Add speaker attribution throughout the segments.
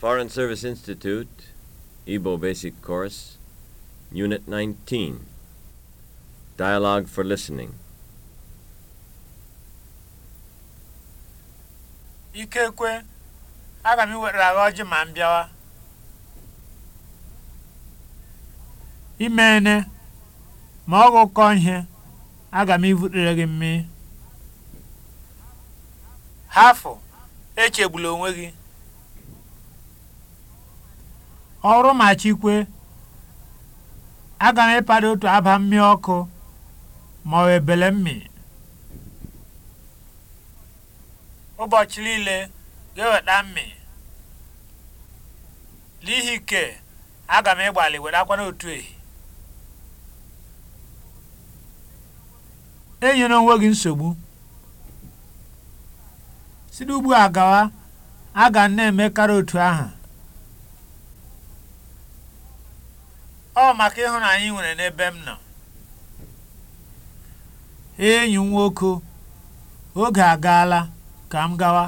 Speaker 1: Foreign Service Institute, Igbo Basic Course, Unit 19, Dialogue for Listening.
Speaker 2: Ikekwe, aga m iwetara gị ọjị ma m bịawa. Imene, ma ọ gụkọ ihe, aga m ibutere gị mmiri. Hafụ, echegbula onwe gị. ọrụ machikwe aga m ịpada otu aba mmiri ọkụ ma ọ ebele mmiri ụbọchị niile ga-eweta mmiri n'ihi ke aga m ịgbalị wetakwa n'otu ehi enyere onwe gị nsogbu si n'ugbu a gawa aga na-emekarị otu ahụ ọ maka ịhụnanya ị nwere n'ebe m nọ enyi m nwoke oge agaala ka m gawa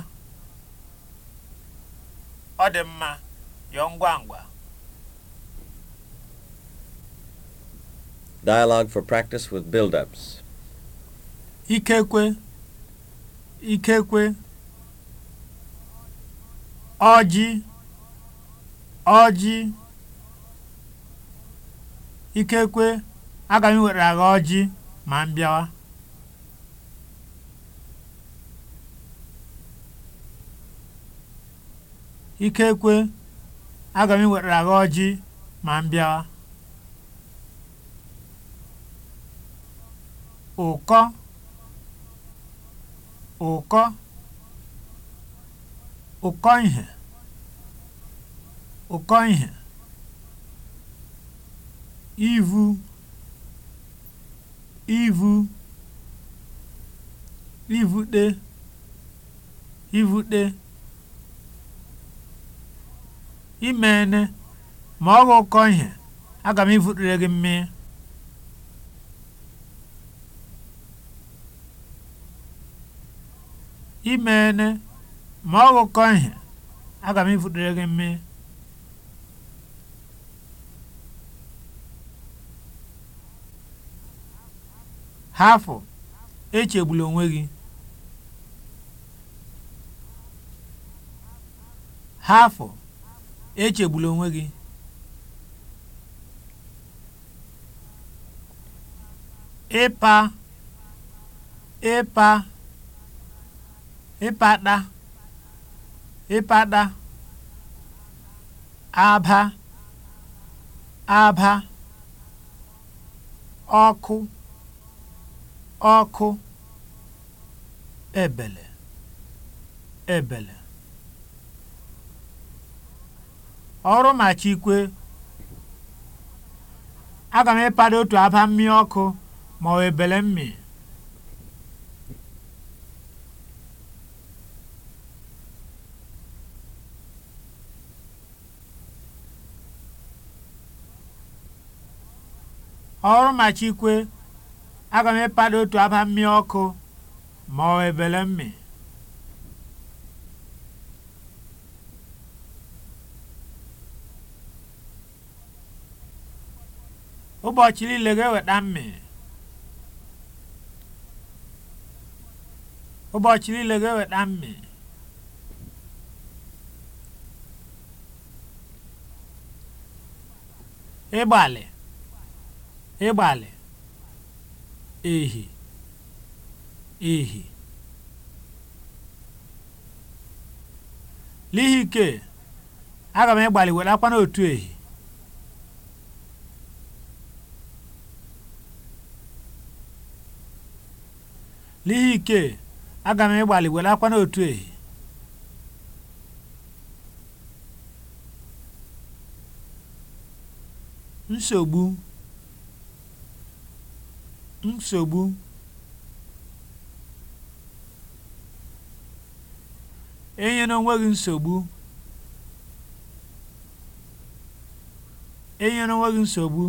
Speaker 2: ọ dị mma yọọ ngwa ngwa
Speaker 1: Dialogue for practice with build-ups. Ikekwe.
Speaker 2: Ikekwe. Ọjị. Ọjị. ikekwe aga m iwere agha ọjị ma m bịawa ikekwe ụkọ ụkọ ụkọ ihe ụkọ ihe ivu ivu ivute ivute imene ma ọ ụkọ ihe aga m ivutere gị mmiri ma ọ ihe aga m hafụ echegbula onwe gị hafụ echegbula onwe gị ịpa ịpa ịpada ịpada aba aba ọkụ ọkụ ebele ebele ọrụ machikwe aga m ịpado otu aba mmiri ọkụ ma ọ ebele mmiri ọrụ machikwe aga m ịpada otu aba mmiri ọkụ ma ọ ebele mmi ụbọchị niile ga-eweta mmi ụbọchị niile ga-eweta mmi ịgbalị ịgbalị ehi ehi n'ihi ike aga m ịgbalị were akwa n'otu ehi n'ihi ike aga m ịgbalị were akwa n'otu ehi nsogbu nsogbu enyela onwe gị nsogbu enyela onwe gị nsogbu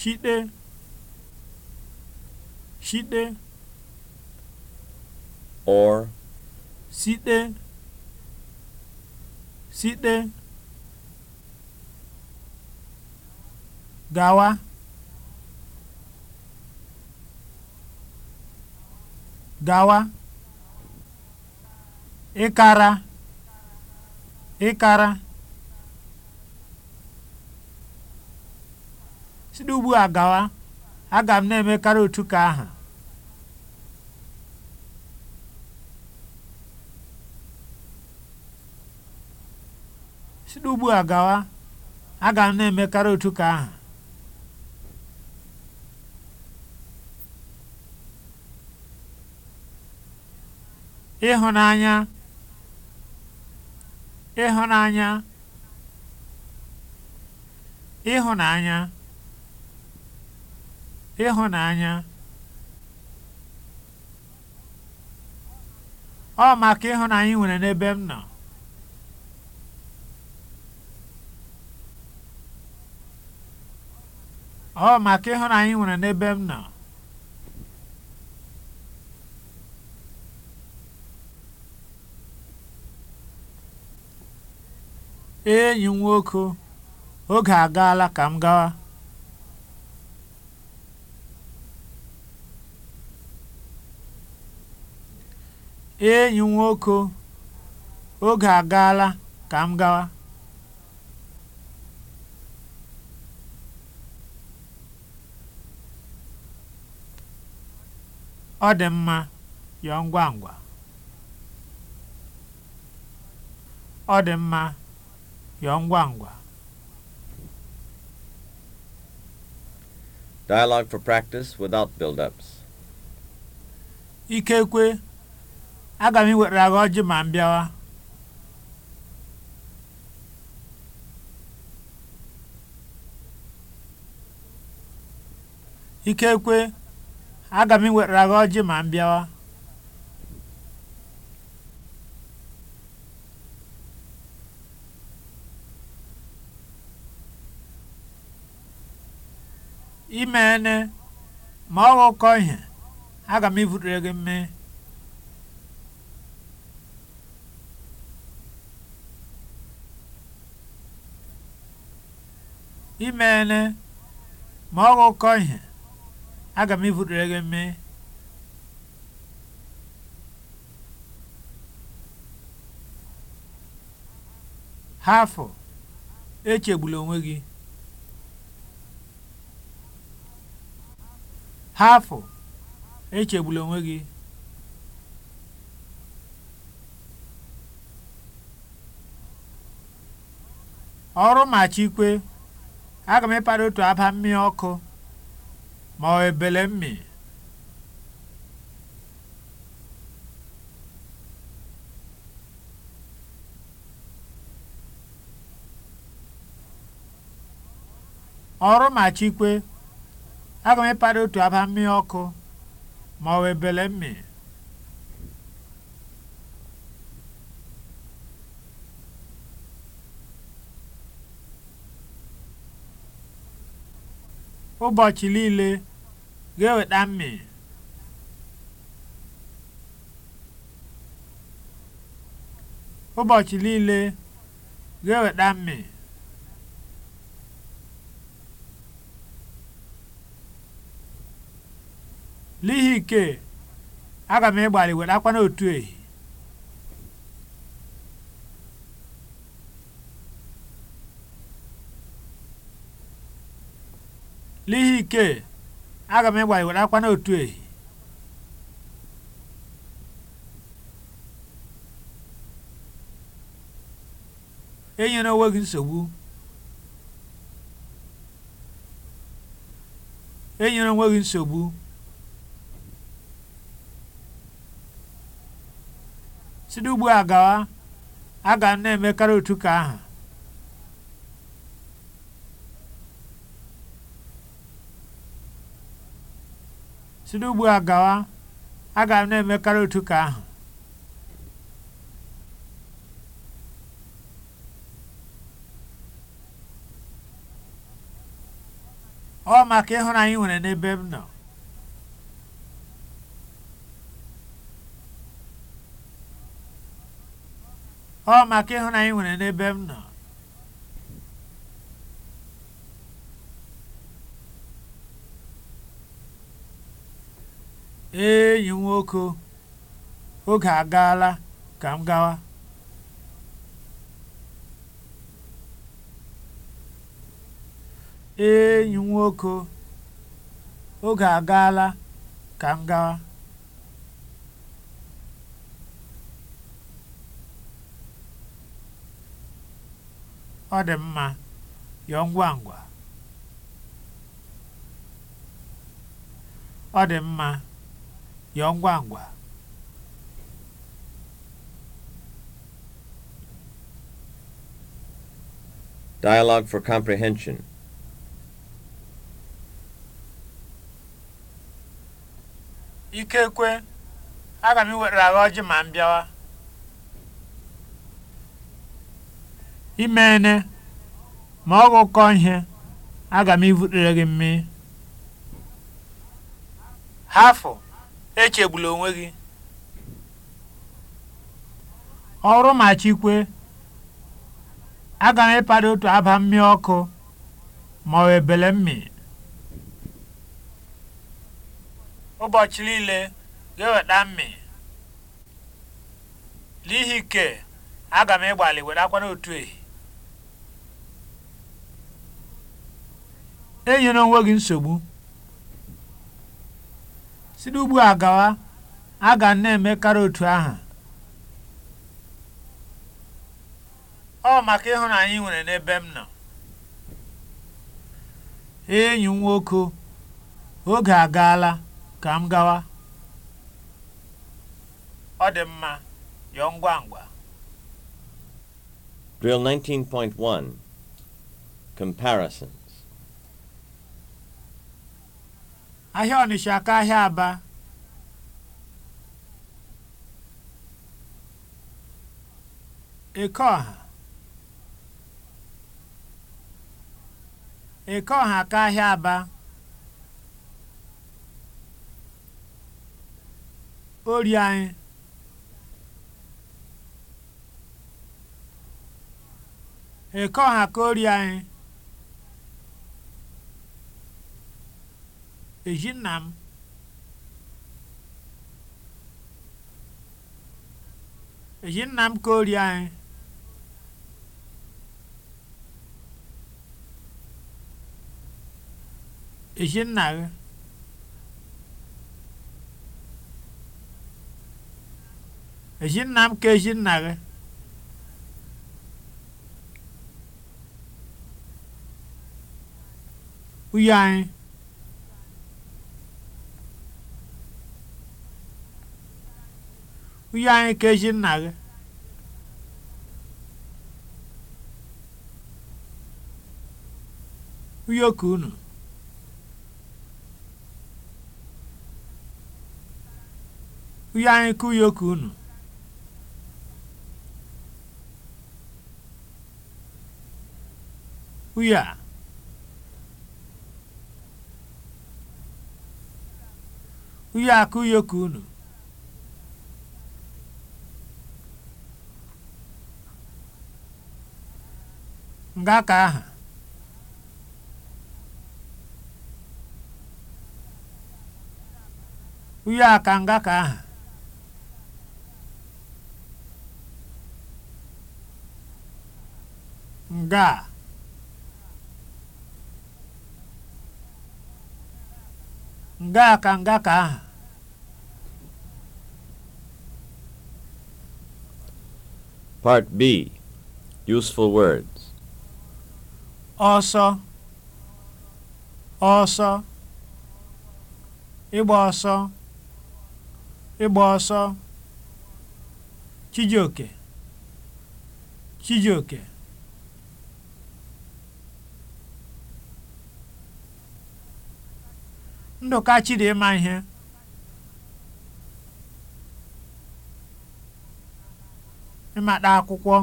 Speaker 2: shite shite or site site gawa gawa ịkara ịkara ugbu aga m na emekarị otu ka otu ka aha ịhụnanya ịhụnanya ịhụnanya ịhụnanya ọ maka ịhụnanya ị nwere n'ebe m nọ ọ maka ịhụnanya ị nwere n'ebe m nọ enyi m nwoke oge agaala ka m gawa ka m ọ dị mma yọọ ngwa ngwa ọ dị mma yọọ ngwa ngwa
Speaker 1: Dialogue for practice without build-ups.
Speaker 2: Ikekwe, aga m iwetara gị ọjị ma m bịawa. Ikekwe, aga m iwetara gị ọjị ma m bịawa. imene ma ọ ghọkọ ihe aga m ivutere gị mme ha ma ọ ghọkọ echegbula onwe gị hafụ echegbula onwe gị ọrụ machikwe aga m ịkpara otu aba mmiri ọkụ ma ọ ebele mmi ọrụ ma machikwe aga m ịkpara otu aba mmiri ọkụ ma ọ wee mmiri ụbọchị niile ga-eweta mmiri ụbọchị niile ga-eweta mmiri n'ihi ike aga m ịgbalị wetakwa n'otu ehi aga n'otu enyere enyere onwe gị nsogbu site ugbu a gawa a ga na-emekarị otu ka ahụ a gawa a ga na-emekarị otu ka ahụ ọ maka ịhụnanya nwere n'ebe m nọ ọ maka ịhụnanya nwere n'ebe m nọ enyi nwoke oge agaala ka m gawa enyi nwoke oge agaala ka m gawa ọ dị mma yọọ ngwa ngwa ọ dị mma yọọ ngwa ngwa
Speaker 1: Dialogue for comprehension.
Speaker 2: Ikekwe, aga m ewetara agha ọjị ma m bịawa. imene ma ọ gụkọ ihe aga m ivutere gị mmiri hafụ echegbula onwe gị ọrụ ma chikwe aga m ịpada otu aba mmiri ọkụ ma ọ ebele mmiri ụbọchị niile ga-eweta mmiri n'ihi ike aga m ịgbalị were akwa ehi enyela onwe gị nsogbu site ugbu a gawa a ga na-emekarị otu ahụ. ọ maka ịhụnanya ị nwere n'ebe m nọ enyi m nwoke oge agaala ka m gawa ọ dị mma yọọ ngwa ngwa
Speaker 1: Drill 19.1 Comparison
Speaker 2: ahịa Ọnịsha ka ahịa Aba Ekeọha Ekeọha ka ahịa Aba ori anyị Ekeọha ka ori anyị eji nna m ka ori anyị ezinna gị ezinna m ka ezinna gị uyi anyị nwunye anyị kechi nna gị ụyọkụ unu ụyọ anyị ka ụyọkụ unu ụyọ a ụyọ a ka unu nga ka aha uyo aka nga ka aha nga nga aka nga ka aha
Speaker 1: Part B Useful Word
Speaker 2: ọsọ ọsọ ịgba ọsọ ịgba ọsọ Chijioke Chijioke Ndụka chiri ịma ihe ịmata akwụkwọ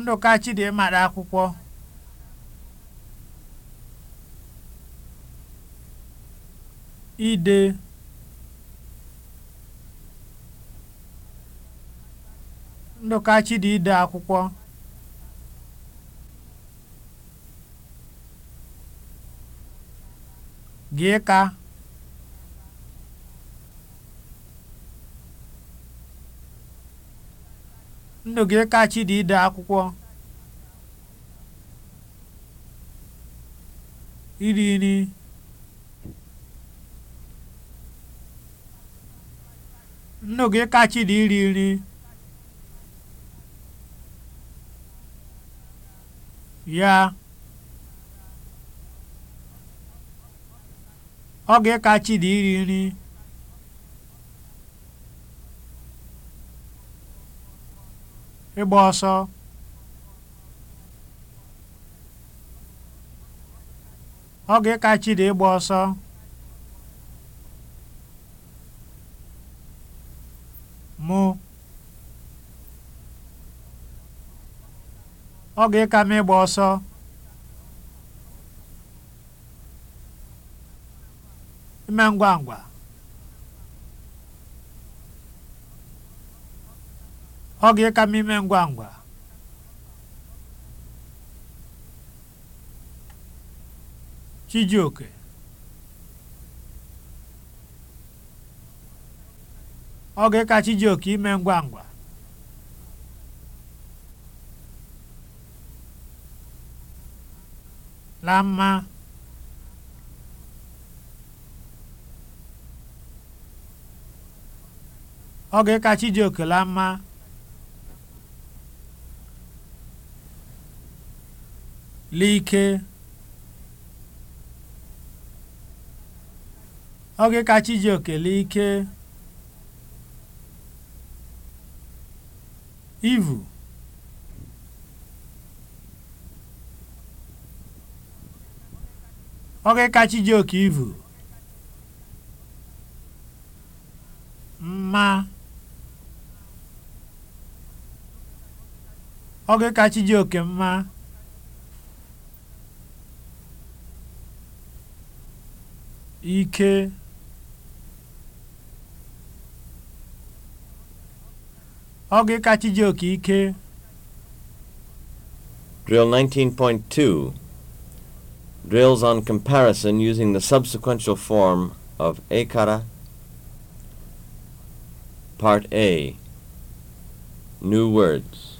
Speaker 2: Ndụka Chidimma akwụkwọ ide Ndụka Chidi ide akwụkwọ gị ka Chinụgị kachi dị ide akwụkwọ iri nri nnu kachi dị iri nri ya ọ gị dị ịrị iri nri ịgba ọsọ oge kachi dị ịgba ọsọ mụ oge ka m ịgba ọsọ ime ngwa ngwa ọ ga eka m ime ngwa ngwa Chijioke ọ ga-ịka Chijioke ime ngwa ngwa la mma ọ ga-ịka Chijioke la mma l'ike oge ka Chijioke ike ivu oge iji oke ivu mma oge iji oke mma ike ọ gị ka Chijioke
Speaker 1: ike Drill 19.2 Drills on comparison using the subsequential form of ekara. Part A New words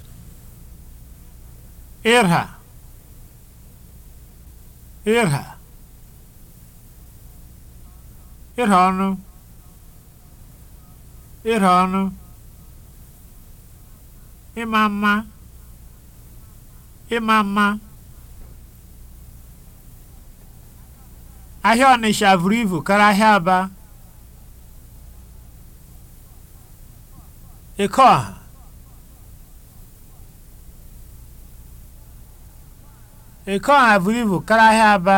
Speaker 2: Irha Irha ịra ọnụ ọnụ ịma mma mma ahịa Ọnịsha vuru ivu karịa ahịa Aba eke ọha eke ahịa Aba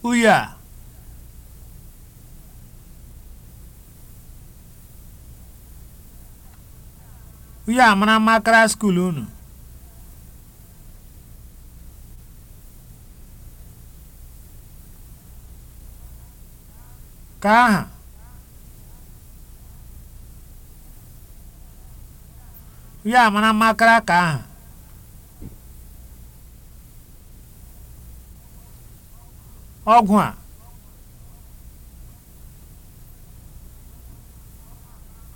Speaker 2: Uyi a uyi a mara unu ka aha uya a mara mma ka aha ọgwụ a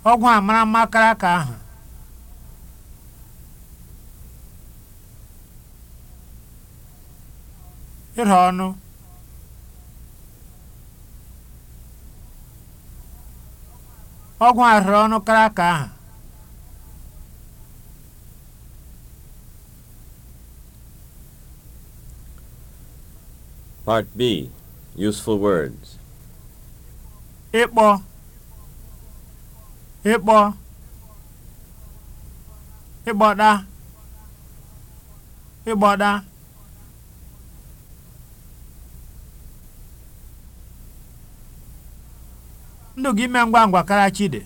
Speaker 2: ọgwụ a mara mma kara ka ahụ Ịrụ ọnụ ọgwụ a rụrụ ọnụ kara ka ahụ
Speaker 1: Part B Useful Words
Speaker 2: Ịkpọ Ịkpọ ịgbọda ịgbọda ndụ gị ime ngwa ngwa kara chide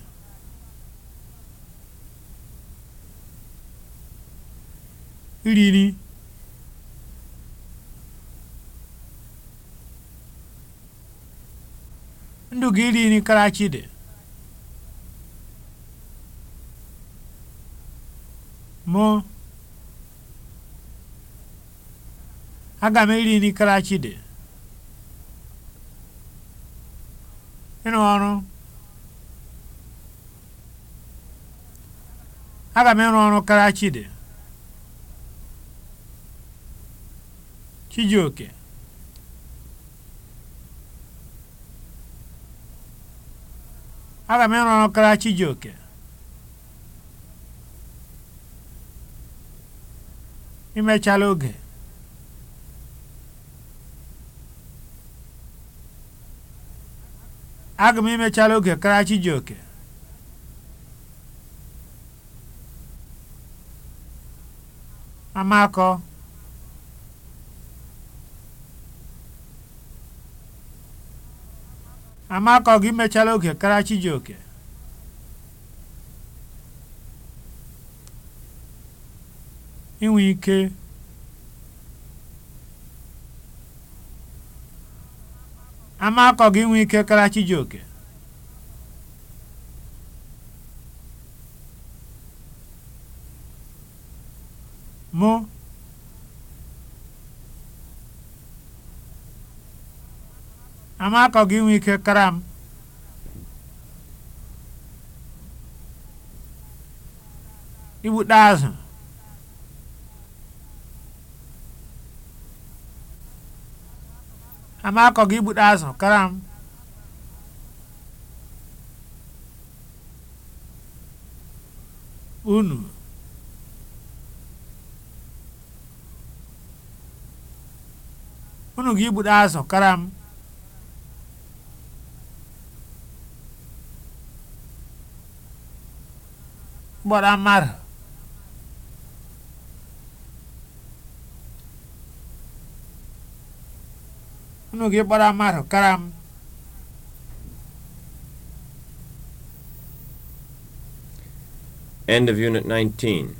Speaker 2: iriri ka iri nri Karachi dị mụ aga m iri nri Karachi dị ịrụ ọrụ aga m ịrụ ọrụ Karachi dị Chijioke aga m ịrụ ọrụ karịa Chijioke imechala oge aga m imechala oge karịa Chijioke amakọ Amaka ọ gị mechala oge kara Chijioke inwe ike ike kara Chijioke mụ amakọ gị inwe ike kara m igbute azụ amakọ gị igbute azụ kara m unu unu gị igbute azụ kara m kpọrọ mmadụ unu gị kpọrọ mmadụ kara m
Speaker 1: End of Unit 19.